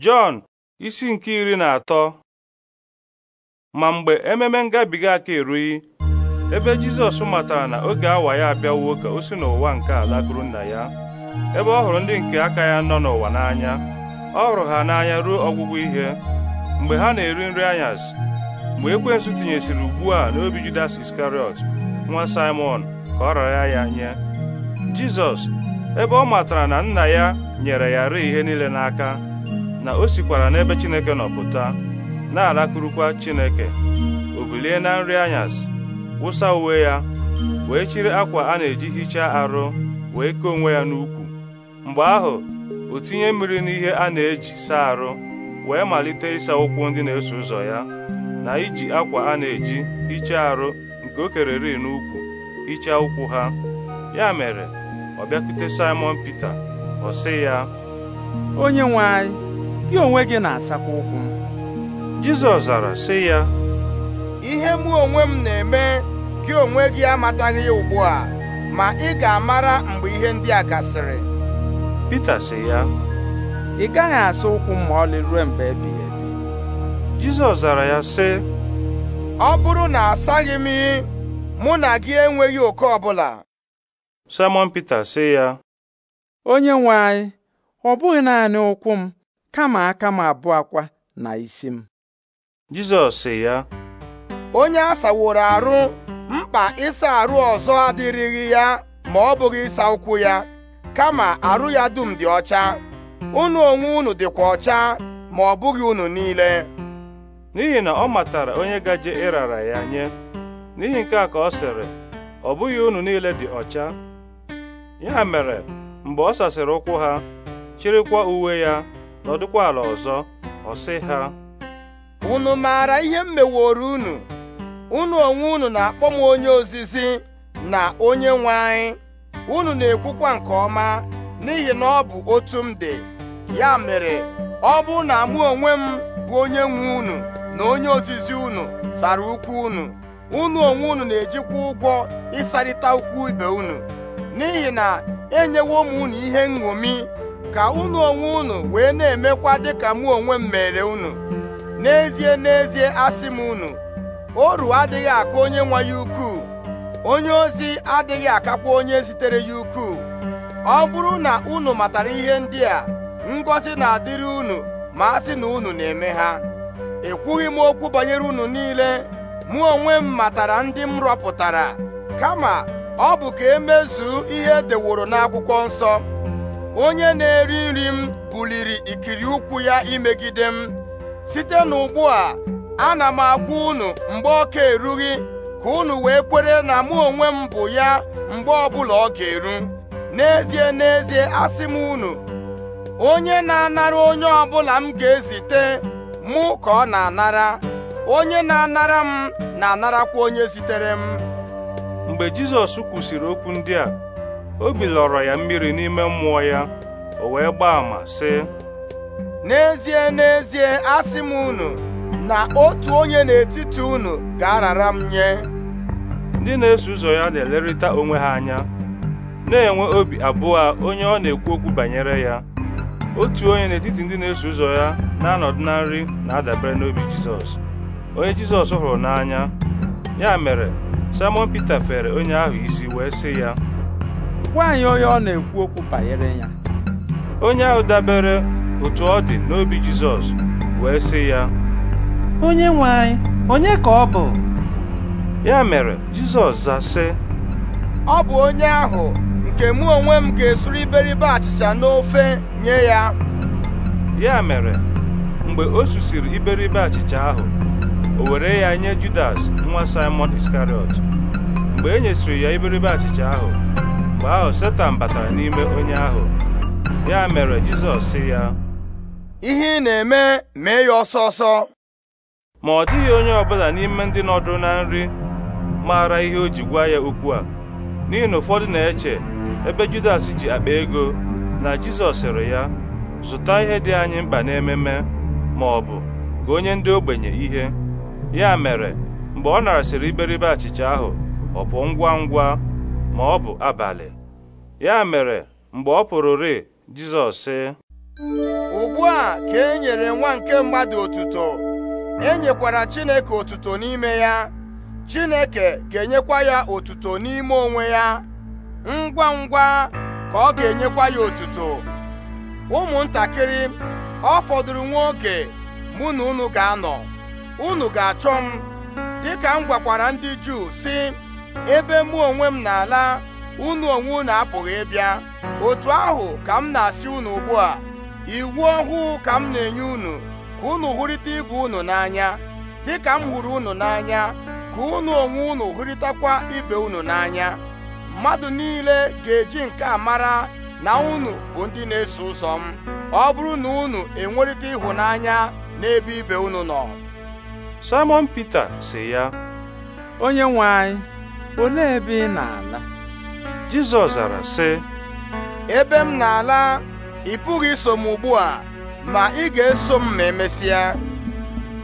Jọn isi nke iri na atọ ma mgbe ememe ngabiga aka erughị ebe Jizọs matara na oge awa ya abịawo ka o si n'ụwa nke ala gụrụ nna ya ebe ọ hụrụ ndị nke aka ya nọ n'ụwa n'anya ọ hụrụ ha n'anya ruo ọgwụgwụ ihe mgbe ha na-eri nri anyasị mgbe ekwensu tinyesịrị ugbu a n'obi Judas Iskariọt nwa Simon ka ọ rara ya nye Jizọs ebe ọ matara na nna ya nyere ya rịị ihe niile n'aka na o sikwara n'ebe Chineke nọ pụta na-alakụrụkwa Chineke o bilie na nri anyasị wụsa uwe ya wee chiri akwa a na-eji hichaa arụ wee kee onwe ya n'ukwu mgbe ahụ o tinye mmiri n'ihe a na-eji saa arụ wee malite ịsa ụkwụ ndị na-eso ụzọ ya na iji akwa a na-eji hichaa arụ nke o kereri n'ukwu hichaa ụkwụ ha ya mere ọ bịakwute Simon Pita ọ sị ya onye nwe anyị gị onwe gị na-asakwa ụkwụ m Jizọs zara sị ya ihe mụ onwe m na-eme gị onwe gị amataghị ya ugbu a ma ị ga-amara mgbe ihe ndị a gasịrị Pita sị ya ị gaghị asa ụkwụ m ma ọlị ruo mgbe ebighị ebi Jizọs zara ya sị ọ bụrụ na asaghị m mụ na gị enweghị oke ọbụla Simon Pita sị ya onye nwe anyị ọ bụghị naanị ụkwụ m kama aka m abụọ akwa na isi m Jizọs sị ya onye a saworo arụ mkpa ịsa arụ ọzọ adịrịghị ya ma ọ bụghị ịsa ụkwụ ya kama arụ ya dum dị ọcha unu onwe unu dịkwa ọcha ma ọ bụghị unu niile n'ihi na ọ matara onye gaje ịrara ya nye n'ihi nke a ka ọ sịrị ọ bụghị unu niile dị ọcha ya mere mgbe ọ sasịrị ụkwụ ha chịrịkwa uwe ya nọdụkwa ala ọzọ ọsị ha unu maara ihe m meworo unu unu onwe unu na-akpọ m onye ozizi na onye nwe anyị unu na-ekwukwa nke ọma n'ihi na ọ bụ otu m dị ya mere ọ bụ na mụ onwe m bụ onye nwe unu na onye ozizi unu sara ukwu unu unu onwe unu na-ejikwa ụgwọ ịsarịta ukwu ibe unu n'ihi na enyewo m unu ihe nṅomi ka unu onwe unu wee na-emekwa dịka mụ onwe m mere unu n'ezie n'ezie asị m unu oru adịghị aka onye nwa ya ukwuu onye ozi adịghị akakwa onye zitere ya ukwuu ọ bụrụ na unu matara ihe ndị a ngọzi na-adịrị unu ma asị sị na unu na-eme ha ekwughị m okwu banyere unu niile mụ onwe m matara ndị m rọpụtara kama ọ bụ ka emezuo ihe edeworo n'akwụkwọ nsọ onye na-eri nri m buliri ikiri ụkwụ ya imegide m site n'ugbu a ana m agwa unu mgbe ọ ka erughị ka unu wee kwere na mụ onwe m bụ ya mgbe ọbụla ọ ga-eru n'ezie n'ezie asị m unu onye na-anara onye ọbụla m ga-ezite mụ ka ọ na-anara onye na-anara m na-anarakwa onye zitere m mgbe Jizọs kwụsịrị okwu ndị a obi lọrọ ya mmiri n'ime mmụọ ya o wee gbaa ama sị n'ezie n'ezie asị m unu na otu onye n'etiti unu ga-arara m nye ndị na-eso ụzọ ya na-elerịta onwe ha anya na-enwe obi abụọ onye ọ na-ekwu okwu banyere ya otu onye n'etiti ndị na-eso ụzọ ya na-anọdụ na nri na-adabere n'obi Jizọs onye Jizọs hụrụ n'anya ya mere Simon Pita fere onye ahụ isi wee sị ya gwa onye ọ na-ekwu okwu banyere ya onye ahụ dabere otu ọ dị n'obi Jizọs wee sị ya onye nwe anyị onye ka ọ bụ ya mere Jizọs za sị ọ bụ onye ahụ nke mụ onwe m ga-esuru iberibe achịcha n'ofe nye ya ya mere mgbe o susiri iberibe achịcha ahụ o were ya nye Judas nwa Simon Iskariot mgbe e nyesịrị ya iberibe achịcha ahụ Mgbe ahụ Setan batara n'ime onye ahụ ya mere Jizọs sị ya ihe ị na-eme mee ya ọsọ ọsọ ma ọ dịghị onye ọbụla n'ime ndị nọdụ na nri maara ihe o ji gwa ya okwu a n'ihi na ụfọdụ na-eche ebe Judas ji akpa ego na Jizọs sịrị ya zụta ihe dị anyị mkpa n'ememe ma ọ bụ ka onye ndị ogbenye ihe ya mere mgbe ọ narasịrị iberibe achịcha ahụ ọ pụọ ngwa ngwa ma ọ bụ abalị ya mere mgbe ọ pụrụ pụrụrị Jizọs sị ugbu a ka e nyere nwa nke mmadụ otuto enyekwara Chineke otuto n'ime ya Chineke ga-enyekwa ya otuto n'ime onwe ya ngwa ngwa ka ọ ga-enyekwa ya otuto ụmụntakịrị ọ fọdụrụ nwa oge mụ na unu ga-anọ unu ga-achọ m dịka m gwakwara ndị Juu sị ebe mụ onwe m na-ala unu onwe unu apụghị ịbịa otu ahụ ka m na-asị unu ugbu a iwu ọhụụ ka m na-enye unu ka unu hụrịta ibe unu n'anya dịka m hụrụ unu n'anya ka unu onwe unu hụrịtakwa ibe unu n'anya mmadụ niile ga-eji nke a mara na unu bụ ndị na-eso ụzọ m ọ bụrụ na unu enwerịta ịhụnanya n'ebe ibe unu nọ Simon Pita sị ya onye nwe anyị olee ebe ị na-ala Jizọs zara sị ebe m na-ala ị pụghị iso m ugbu a ma ị ga-eso m ma emesịa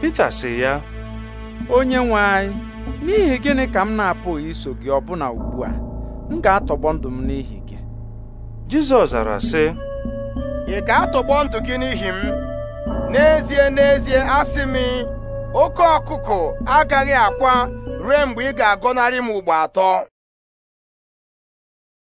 Pita sị ya onye nwe anyị n'ihi gịnị ka m na-apụghị iso gị ọbụna ugbu a m ga-atọgbọ ndụ m n'ihi gị Jizọs zara sị ị ga-atọgbọ ndụ gị n'ihi m n'ezie n'ezie asị m oke ọkụkụ agaghị akwa ruo mgbe ị ga-agọnarị m ugbo atọ